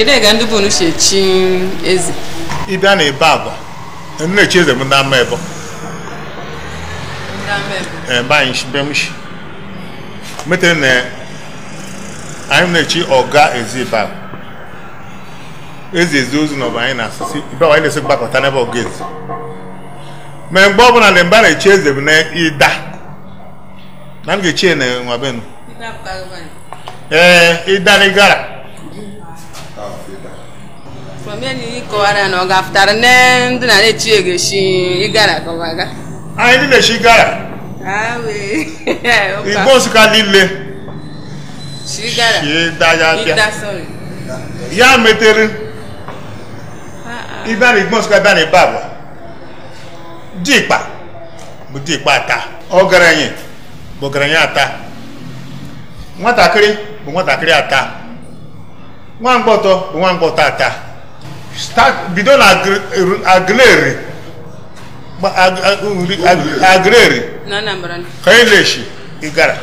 Jide ga ndị bụ unu si echi eze. Ị bịa na ebe abụọ, nna-echi eze m ndị ama ebo. Ndị mba anyị shi na anyị na-echi ọga ezi ibe ahụ. Ezi ezi ozu na ọba anyị na-asụsị ibe anyị na-esi gbakọta n'ebe ọga ezi. Mee mgbe ọbụla na mgbe na-echi eze m na ịda. Na m ga-echi na nwa benu. Ee, ịda n'ịgara. from here ni kọwara na ọ ga-afụtara nne ndị na na-echi egeshi ịgara kọwaga anyị ndị na-echi gara igbo nsụka niile ya metere ịbịa na igbo nsụka bịa na ịba bụ dikpa bụ dikpa ata ọgaranya bụ ọgaranya ata nwatakịrị bụ nwatakịrị ata nwa mgbọtọ bụ nwa mgbọtọ ata bido na agleri agleri kaileshi igara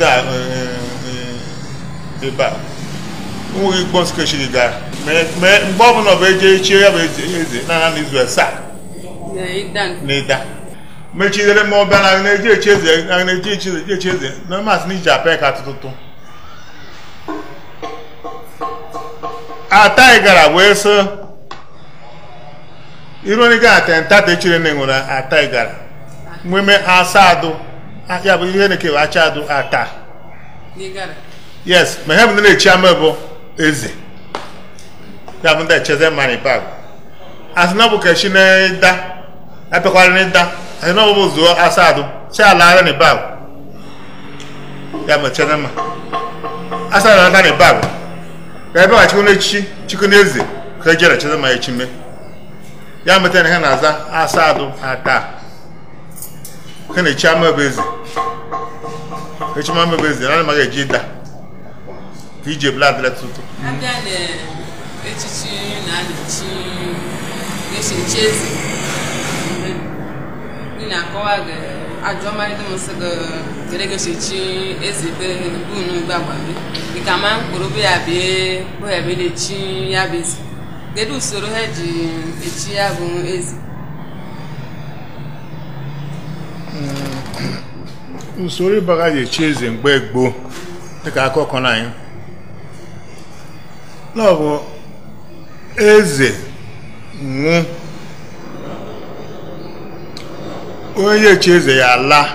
e, e, ebe a nweghị igbo nskechi igara mgbe ọbụla bụ eje echie ya bụ eze na n'izu asaa na ịda mechidere ma ọ na eji echi eze na eji echi eze na masị n'iji apịa ka atụtụtụ ataigara ah, wee sị ironiga atentata echire na ah, nwere ataigara nweme asadụ ah, ya bụ ihe na-ekewa eke achadụ ata yes ma ihe bụ na-echi ama bụ eze ya bụ ndị echeze mani bag asị na ọbụ kechi na ịda apịakwara na ịda asị na ọ bụ zuo asadụ si ala ara na ịbagụ ya bụ echeze ma asadụ na ata na ịbagụ ka ebe a chikona echichi chikona eze ka ejere chizima echime ya meta na ha na-aza asa adụ ata ha na-echi ama ebe eze echima ama ebe eze na anaghị eji ịda ka iji ebula adịla tutu echichi na-adịchi echichi eze ị na-akọwa gị ajụọma dị m nsị gị were gosechi eze be bunu gbagbabe dịka ma mkpụrụ ya bịa bụ ya bụ na-echi ya bụ ezi kedu usoro ha ji echi ya bụ ezi? usoro ịbaga ji echi eze mgbe gboo dịka akụkọ na anyị na ọ bụ eze nwụ onye eze ya laa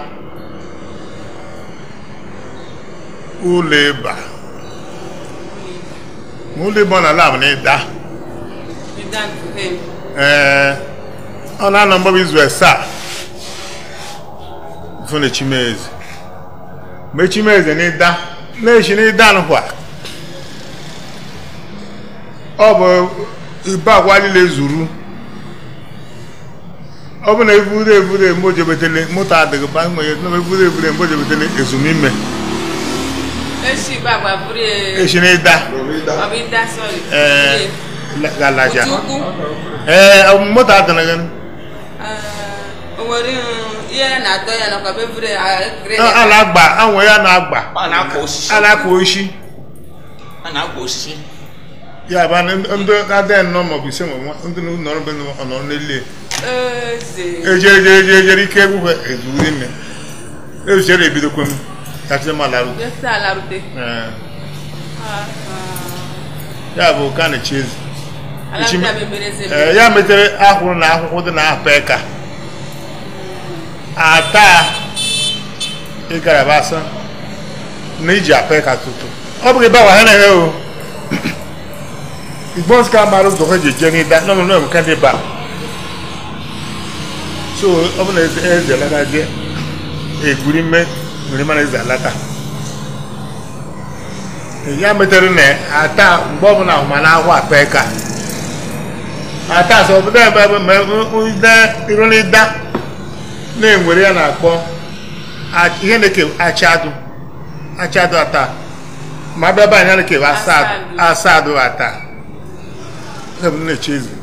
ụlọ ịba ma ụlọ ịba ọ na-ala bụ na ịda ee ọ na-anọ mgbaba izu asaa fụ na chimeze ma chimeze na ịda na-echi na ịda nkwa ọ bụ ibe agwa niile zuru ọ bụ na evure evure mojebetele moto adịghị ba nwere na evure evure mojebetele ezumime esi na ịda galaja ee moto adịghị ala agba anwere a na-agba a na-akwa oshi ya ndị adịghị nnọọ maọbụ ise maọbụ ndị ejejeejejere ike egwu ezuru ezuchere ya bụ na ya eh, metere ahụrụ na akwụkwọ dị na apa eka hmm. ata ịgaraba na iji tutu ọ bụghị ebe awa ha na o igbo nsika mara ụzọ ha ji eje n'ịda n'ọnụ so ọ bụ na eze alata je egwuri mme were mara eze alata e, ya metere na ata mgbe ọbụla ahụ ma na ahụ akpa eka ata asọ obodo ebe ma irụnida na-enwere ya na-akpọ ihe na-eke achadụ achadụ ata ma abịa banyere na-eke asadụ ata ebe na-eche eze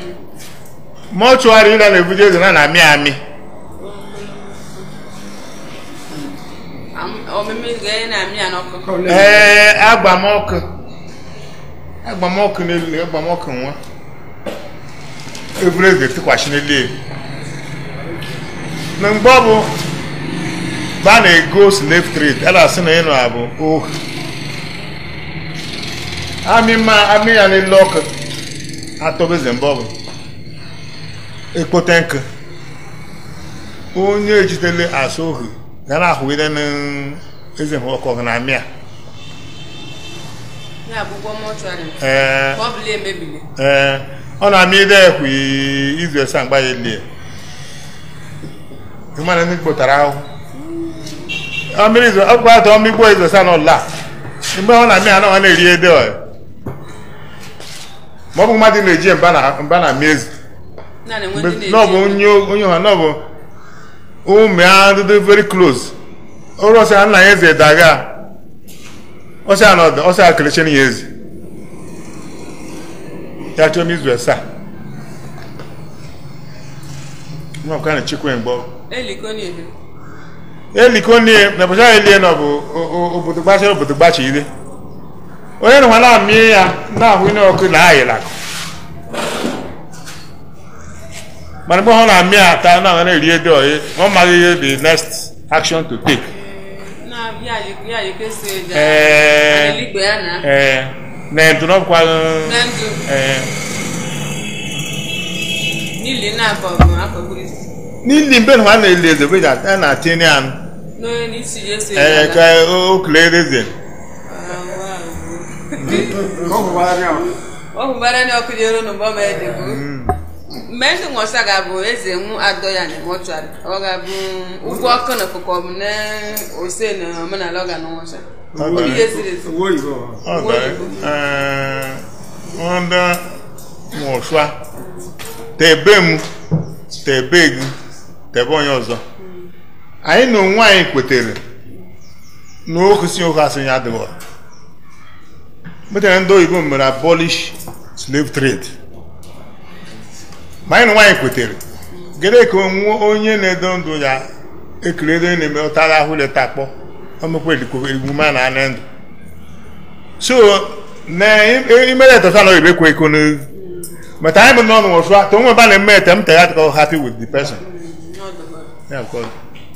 mọchụarị na na-ebuje eze na na-amị amị ee agbamọkụ agbamọkụ n'elu agbamọkụ nwa eburu eze tụkwasị n'elu elu na mgbe ọ bụ ba na-ego slave trade a na na ịnụ abụ ohu amị ma amị ya n'elu ọkụ atọbeze mgbe ọ bụ ekpote nkụ onye ejidere azụ ohu ga na-ahụgide n'eze ọkụ na amịa e ee ọ na-amị ide ekwu izu esa mgba ya elie ịmana ndị kpotara ahụ ọkụ atọ mmigbo izu esa n'ụlọ a mgbe ọ na-amị anọ ọ na-eri ede ọ maọbụ mmadụ na-eji mba na mmezi onye ọha na bụ ụmụ ya ndị veri close ọrụ ọsịa nna ya eze daga ọsịa n'ọdụ ọsịa kelechen ya eze ya chọọ m izu asaa nwa ọkwa na chikwe mgbe elikonie na bụcha elie na bụ obodo gbachara obodo gbachi ire onye na nwa na-amị ya na-ahụ ihe ọkụ na ayịla mana mgbe ha na-amị ata na ha na-eri edo oyi ọ maghị ihe the next action to take. ee na e, ndu n'ọkwa. E. n'ili mgbe ha na-eli eze bụ ya na-atịnye anụ. ee ka o klee eze. ọ bụ bara n'ọkụ dị elu n'ụgbọ ma ede bụ. Mm. mɛnti ŋɔsa ga bo eze ŋu adɔ ya ne mɔtuari ɔga bo ugu ɔkɔ ne kɔkɔ mu ne ose ne ɔmena lɛ ɔga ne ŋɔsa obi ye siri si wo yibɔ ɛɛ wọn da ŋɔsua tɛ be mu tɛ be gu tɛ bɔ nyɛ ɔzɔ anyi na onwe anyị kwetere na okusi ụka sị ya adịghọ metere ndị oyibo mere abolish slave trade ma anyị nwaanyị kwetere gede ka onye na-edo ndụ ya ekirere na-eme ụtara ahụ leta akpọ omekweligwuma na anụ ndụ so na imere etata na oyibe kwe iko n'oyi but anyị bụ n'ọnụ ba na eme etem tegat happy with the person yeah, of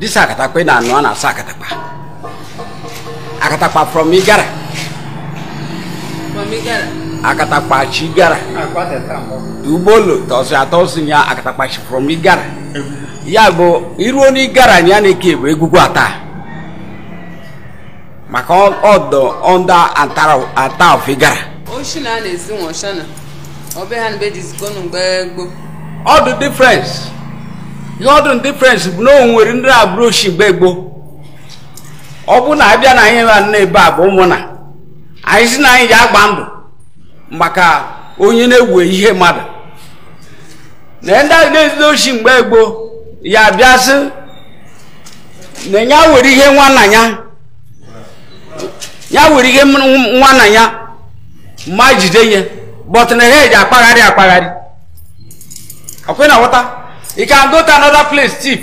dis akatakpa na-anụ a na-asa akatakpa akatakpa from igara akatakpa chi gara ah, ugbolo tọsị atọ ya akatakpa chi from igara ya bụ iruo n'igara anyị a na-eke bụ egwugwu ata maka ọdọ ọnda ata of igara ọ dị difference ihe ọ dụrụ difference bụ na o nwere ndị agbụrụ shigbe gboo ọ bụ na abịa na anyị na ebe a bụ ụmụnna anyị si na anyị ji agba ndụ maka onye na-ewe ihe mmadụ na ndị ahụ na-ezide ochi mgbe gboo ya bịasị na ya were ihe nwanna ya ya were ihe nwanna ya ma jide ihe bọtụ na ha eji akpagharị akpagharị ọkwe na ghọta ị can go to another place cheap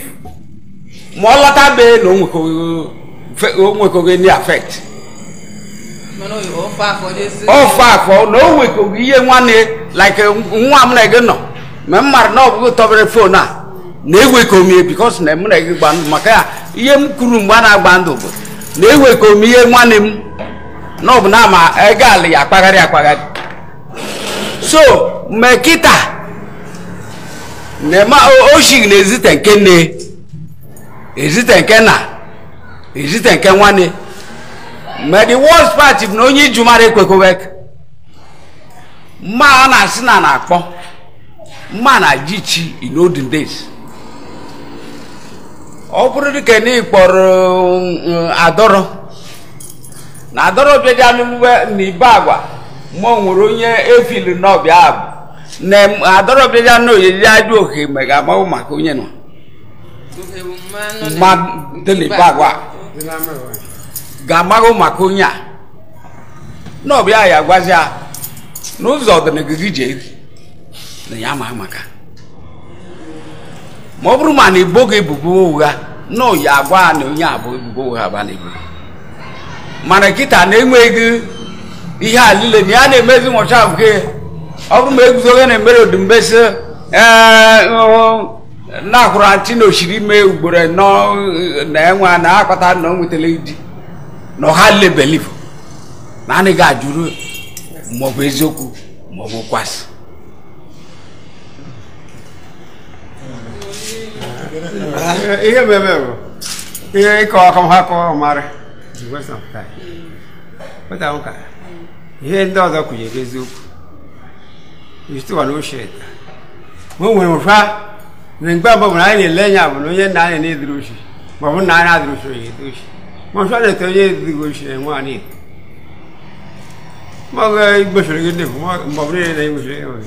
ma ọ lọta bee na o nwekoghị n'i affect ofe afọ na o nwekoghị ihe nwanne like nwa m na gị nọ ma m mara na ọ bụghị tọbere fon a na-ewekọ m bikos na m na gị gba ndụ maka ya ihe m kwuru mgbe a na-agba ndụ bụ na-ewekọ m ihe nwanne m na ọ na ama ego ya akpagharị akpagharị so kita. nema oshi na-ezite nke nne ezite nke na ezite nke nwanne ma the worst part bụ na onye iju mara ekwekowe mma a na-asị na na-akpọ mma na-aji chi in olden days ọ bụrụ dịka na ịkpọrọ eh, adọrọ na adọrọ bịa dị anụ na ibe agwa ma ọ nwere onye efili n'ọbịa abụ ne adɔrɔ bi ya n'o ye ya do he mɛ ka ma o ma ko nye nɔ ma deli ba wa gama o ma ko nya n'o bi aya gbaza n'ụzọ dị n'ogige je na ya ma maka ma ọ bụrụ ma na igbo ga ebubo ụgha na oyi agwa na onye abụ ebubo ụgha ba na ebubo mana nkịta na-enweghị ihe a niile na ya na-emezi nwọcha nke ọ bụrụ ma eguzoghị na emere odumbeso na-akwụrụ antị na osiri ime ugboro nọ na enwe na akpata na ọ nwetara di na ọha lebelivu na anaghị ajụrụ maọbụ eziokwu maọbụ kwasị ihe mmemme bụ ihe ịkọ ọkọha kọ mara ihe ndị ọzọ kwụnyere eziokwu yusuf no shit mun wani fa nin gba ba mun ne lenya mun ye na ne drushi ba mun na na drushi ye drushi mun fa ne to ye drushi mun ani ma ga igbe shiri ne ma ba ne ne igbe shiri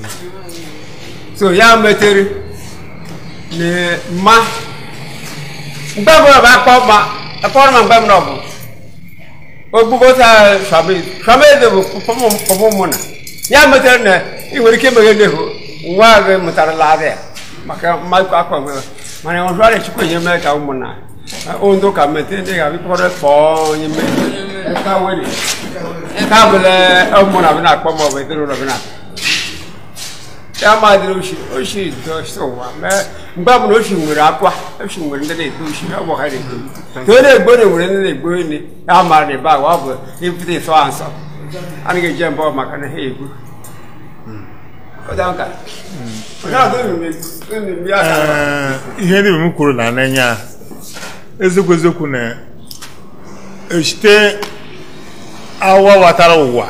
so ya meteri ne ma gba ba ba pa ma akọrọ ma gba mu na bu o gbogbo ta sabi sabi de bu pomo pomo mu na ya meteri ne ị nwere ike meghe nne ụwa gị mụtarala adị maka mmadụ akwa gị mana ọrụ arịa chukwu enye mee ka na. ka mete ndị ga-abịkọrọ kpọọ onye mee ka were nke na-akpọ ya oshi oshi dosi ụwa mee mgbe ọbụla oshi nwere akwa oshi nwere ndị na-eto oshi na-eto ka onye na-egbo na ndị na ya mara na ebe bụ ịpụta ịsọ ha a na maka na ha egbu ihe ndị m kwuru na n'anya eziokwu eziokwu na esite awa watara ụwa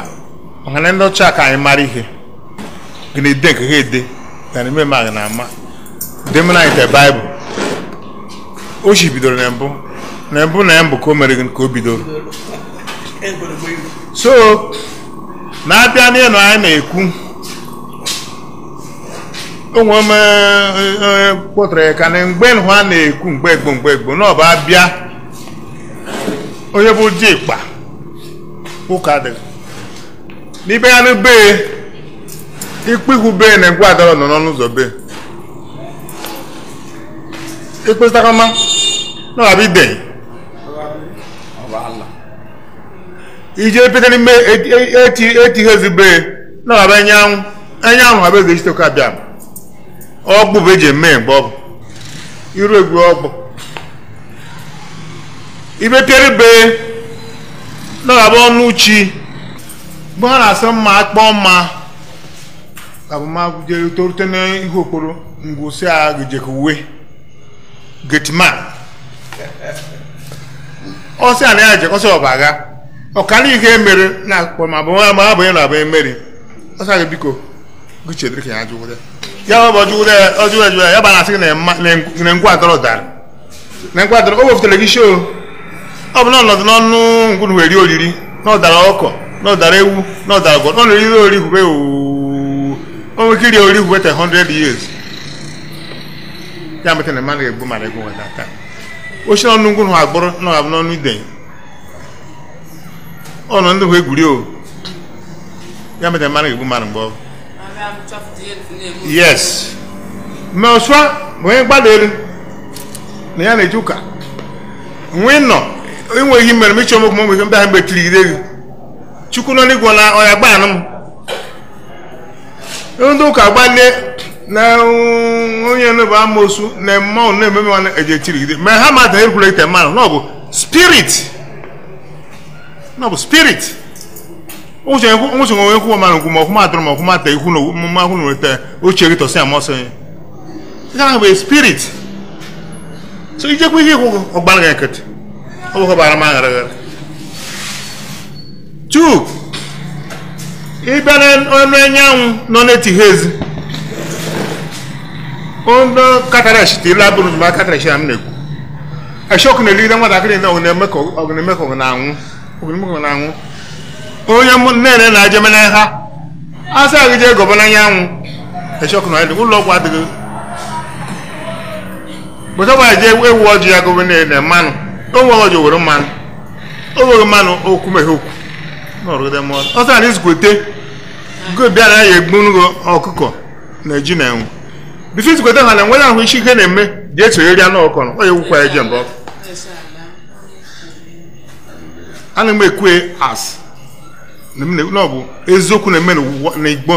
maka na ndị ọcha ka anyị mara ihe gịnị ede nke ha ede na n'ime ma gị na-ama demna ite baịbụl o chi bidoro na mbụ na mbụ na ya mbụ ka o mere gị ka o bidoro so na-abịa n'ihe na anyị na-ekwu onwe m kpọtara ya ka na mgbe nhụ na-ekwu mgbe egbo mgbe egbo na ọba bịa onye bụ dikpa ụka dị n'ibe ya n'be ikpe ihu be na ngwa adọrọ nọ n'ọnụ ụzọ be ikpesakama na ọba ibe ije pete n'ime eti ezi be na ọba enyanwụ enyanwụ ha bụ eze chiteka bịa. ọgbụ bụ eji eme mgbe ọgwụ iru egwu ọgbụ ibekere be nọrọba ọnụ chi mgbe ha na-asị mma akpọ mma abụmagụjere torute n'ihe okporo ngwụsị a gejekwe getman ọsị a na ya jekọsị ọbaga ọkara ihe mere na akpụkpọ ma ya na abụ emeri ọsị a ga biko gụchedere ka ya jụwụrụ ya ya ọjụjụ ya bara asị gị na ngwa adọrọ dara na ngwa adọrọ o wefụtara gị ọ bụ na n'ọnụ ngwunu wee olili oriri ọdara ọkọ na ọdara ewu na ọdara n'ọnụ iri ori o nwere ori 100 years ya mete na mmadụ ga-egbu n'ọnụ agbụrụ n'ọnụ o ya mete mmadụ ga-egbu yes ma onye gbada na ya na eji ụka nọ enweghị mere m ịchọ mokwu m ihe mbe ahụ mgbe gị chukwu nọ na ọya gbanụ m ndị ụka gbalie na onye nụ bụ na na ememe eji echirigide ma ha ma da mmanụ spirit ŋutsu ŋo eku ma nuku ma kuma drɔ ma kuma te iku no ma ku no te oche tse kitɔ se amɔ se it can be a spirit so idze ku yi ko ɔgbani ka kete o ko baara ma ŋara ŋara two ibene ɔnu enyanwu nɔ n'eti hezi ɔnu katarash ti laburu ma katarash am n'eku ɛsɛ ɔkuna eli na nwatakiri na ɔkuna eme ka ɔkuna eme ka ɔkuna anwu ɔkuna eme na ɔkuna anwu. onye nne na ajeme na ha asa gị jee gọba n'anyanwụ ụlọ ọgwụ adịghị bụtaba je ewu ọjị ya gọba na mmanụ onwe ọjị were mmanụ onweghị mmanụ okwu meghe okwu ọsọ anyị zụkwete go bịara ya egbunugo ọkụkọ na ji na enwe bife zụkwete ha na nwere ahụ isi ihe na-eme ji esonyeri anụ ọkọrọ onye gwụkwa eje mbọ ana m ekwe asị na ọ bụ eziokwu na-eme n'igbo